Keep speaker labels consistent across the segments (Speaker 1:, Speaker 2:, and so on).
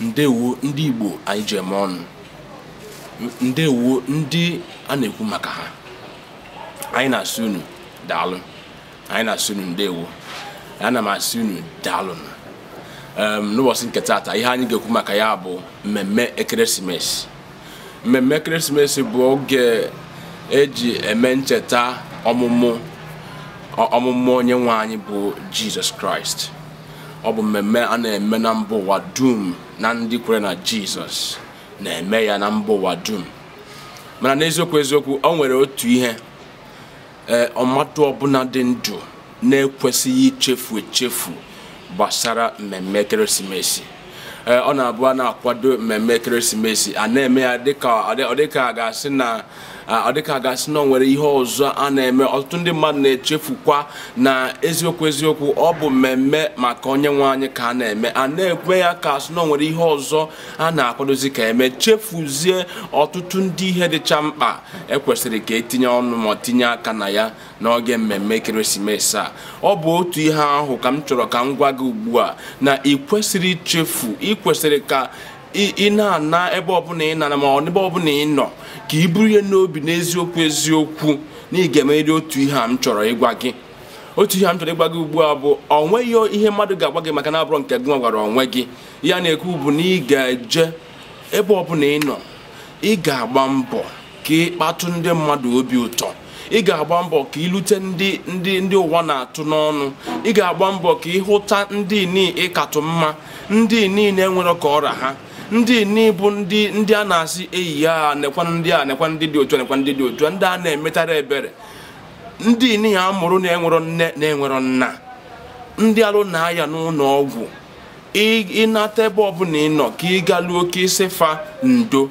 Speaker 1: ndewo ndị igbo anyị ji eme ọnụ ndewo ndị a na-ekwu maka ha anyị na-asị unu daalụ anyị na-asị unu ndewo ana m asị unu daalụ n'ụbọchị nke taata ihe anyị ga-ekwu maka ya bụ mmemme ekeresimesi mmemme ekeresimesi bụ oge eji eme ncheta ọmụmụ ọmụmụ onye nwe anyị bụ jizọs kraịst ọ bụ mmemme a na-eme na mba ụwa dum na ndị kwere na jizọs na-eme ya na mba ụwa dum mana n'eziokwu eziokwu o nwere otu ihe ee ọmatụ ọbụla dị ndụ na-ekwesịghị ichefu echefu gbasara mmemme ekeresimesi e, ọ na-abụ a na-akwado mmemme ekeresimesi a na-eme ya dịka ọ dịka a ga-asị na ọ dịka gasị na nwere ihe ọzọ a na-eme ọtụtụ ndị mmadụ na-echefukwa na eziokwu eziokwu ọ bụ mmemme maka onye nwe anyị ka a na-eme a na-ekwe ya ka asị na nwere ihe ọzọ a na-akwadozi ka eme chefuzie ọtụtụ ndị ihe dịcha mkpa ekwesịrị ka etinye ọnụ ma tinye aka na ya n'oge mmemme ekeresimesi a ọ bụ otu ihe ahụ ka m chọrọ ka m gwa gị ugbu a na ị kwesịrị ichefu ị kwesịrị ka ị na-ana ebe ọbụla ị nana ma ebe ọbụla ị nọ ka ị buru ihe n'obi n'eziokwu eziokwu na ị ga-emerịrị otu ihe a m chọrọ ịgwa gị otu ihe m chọrọ ịgwa gị ugbu a bụ ọ nweghị ihe mmadụ ga-agwa gị maka na abụrọ nke gị nwagwara gwara onwe gị ya na-ekwu bụ na ị ga-eje ebe ọbụla ị nọ ị ga-agba mbọ ka ị kpatụ ndị mmadụ obi ụtọ ị ga-agba mbọ ka ịlute ndị ndị ndị ụwa na-atụ n'ọnụ ị ga-agba mbọ ka hụta ndị niile ịkatụ mma ndị niile nwere ka ọra ha ndị n'ibu ndị ndị a na-asị eyi ya nekwa ndị a nekwa ndị dị otu nekwa ndị dị otu ndị a na-emetara ebere ndị nihi a mụrụ na-enwerọ nne na-enwerọ nna ndị alụ na-aya n'ụlọ ọgwụ ịnata ebe ọbụla ị nọ ka ị galuo ka ịsịfa fa ndo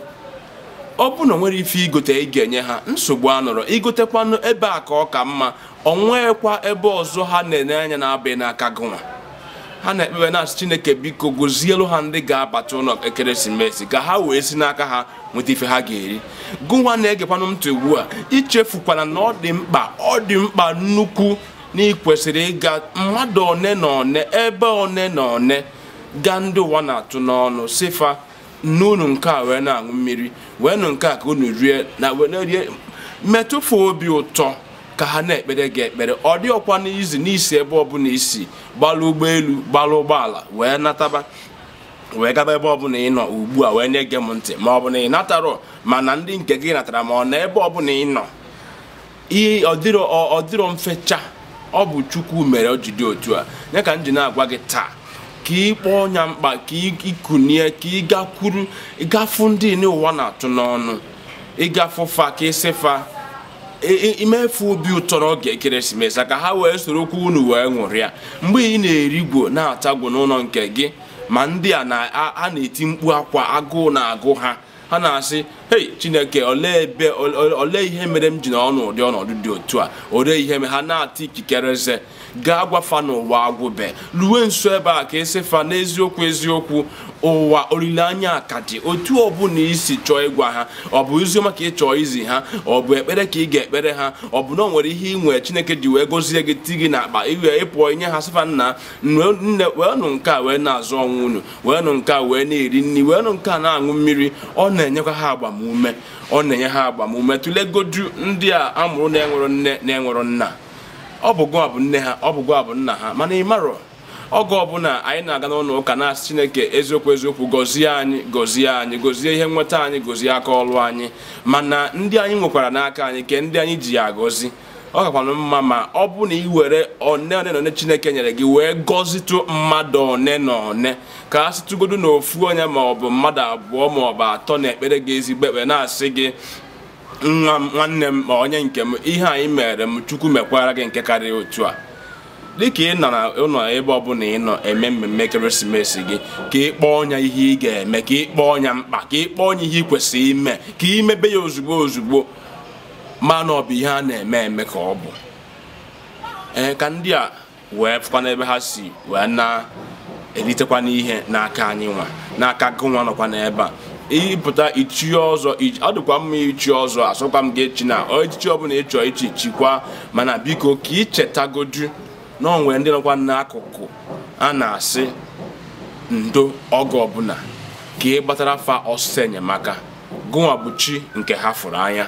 Speaker 1: ọ bụ na nwere ife igote ị ga-enye ha nsogbu a nọrọ igotekwanụ ebe a ka ọ ka mma ọ nwekwa ebe ọzọ ha na-enye anya na-abịa n'aka gụnwa ha na-ekpebe na-asị chineke biko gozielu ha ndị ga-abata ụlọ ekeresimesi ka ha wee si n'aka ha nweta ife ha ga-eri gụwa na-egekwanụ ntụ ugbu a ichefukwana na ọ dị mkpa ọ dị mkpa nnukwu na ịkwesịrị ịga mmadụ one na one ebe one na one gaa ndị ụwa na-atụ n'ọnụ sifa n'unu nke a wee na-aṅụ mmiri wee nụ nke a ka unu rie na wee na-erie metụfu obi ụtọ ka ha na-ekpere gị ekpere ọ dị ọkwa n'izu n'isi ebe ọbụla isi gbalụ ụgbọelu gbalụ ụgbọala wee nataba wee gaba ebe ọbụla ị nọ ugbu a wee nye gị m ntị ma ọ bụ na ị natarọ mana ndị nke gị natara ma ọ na ebe ọbụla ị nọ ọ dịrọ mfecha ọ bụ chukwu mere o jide otu a nye ka m ji na-agwa gị taa ka ị kpọọ ọnya mkpa ka ịkụnie ka ị gakwuru ịgafu ndị n'ụwa na-atụ n'ọnụ ịgafu fa ka ịsị fa imefu obi ụtọ n'oge ekeresimesi a ka ha wee soro okwu unu wee ṅụrịa mgbe ị na-erigwo na-atagwo n'ụlọ nke gị ma ndị a na-eti mkpu akwa agụụ na-agụ ha ha na-asị hei chineke olee ebe olee ihe mere m ji n'ọnụ ụdị ọnọdụ dị otu a olee ihe mere ha na-ata ikikere eze gaa gwafa n'ụwa agwụbe luwe nso ebe a ka esi fa n'eziokwu eziokwu ụwa olileanya ka dị otu ọbụna isi chọọ ịgwa ha ọ bụ oziọma ka ị chọọ izi ha ọ bụ ekpere ka ị ga-ekpere ha ọ bụ na ọ nwere ihe ị nwere chineke ji wee gozie gị ti gị n'akpa iwe ịpụọ inye ha sịfa nna nne wee nụ nke a wee na-azụ ọnwụ unu wee nụ nke a wee na-eri nri wee nụ nke a na-aṅụ mmiri ọ na-enyekwa ha agbamume ọ na-enye ha agbamume tụlegodu ndị a amụrụ na-enwero nne na-enwero nna ọ bụ gụọ nne ha ọ bụ gụọ nna ha mana ị marọ oge ọbụla anyị na-aga n'ụlọ ụka na-asị chineke eziokwu eziokwu gọzie anyị gọzie anyị gọzie ihe nweta anyị gọzie aka ọlụ anyị mana ndị anyị nwekwara n'aka anyị ke ndị anyị ji ya agọzi ọ kakwanụ mma ma ọ bụ na ị were one one na one chineke nyere gị wee gọzitụ mmadụ one na one ka a sịtụgodu na ofu onye ma ọ bụ mmadụ abụọ ma ọ bụ atọ na ekpere gị ezigbo ekpere na-asị gị nwa nwanne m ma onye nke m ihe anyị mere m chukwu mekwara gị nke karịa otu a dịka ị nọ ụlọ ebe ọbụla ị nọ eme mmemme ekeresimesi gị ka ị kpọọ ọnya ihe ị ga-eme ka ị kpọọ ọnya mkpa ka ị kpọọ ọnya ihe ị kwesịrị ime ka ị mebe ya ozugbo ozugbo mana ọ bụ ihe a na-eme eme ka ọ bụ ee ka ndị a wee fụkwa n'ebe ha si wee na-eritekwa n'ihe n'aka anyị nwa n'aka nwa nọkwa n'ebe a ịpụta ichi ọzọ ọ dịkwa mma ichi ọzọ asọkwa m gị echi na echichi ọbụla ị ichi chikwa mana biko ka ichetagodu na onwere ndị nọkwa n'akụkụ a na-asị ndo oge ọbụla ka ị gbatara fa ọsịsọ enyemaka gụnwa bụ chi nke ha fụrụ anya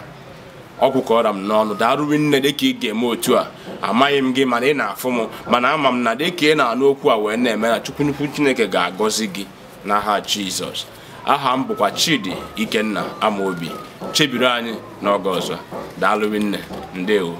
Speaker 1: ọgwụkọra m n'ọnụ daaruwe nne dịka ị ga-eme otu a amaghị m gị mana ị na-afụ m mana ama m na dịka ị na-anụ okwu a wee na-eme na chukwu nnukwu chineke ga-agọzi gị n'aha Jizọs aha m bụkwa Chidi Ikenna Amobi chebiri anyị n'oge ọzọ daalụ nne ndewo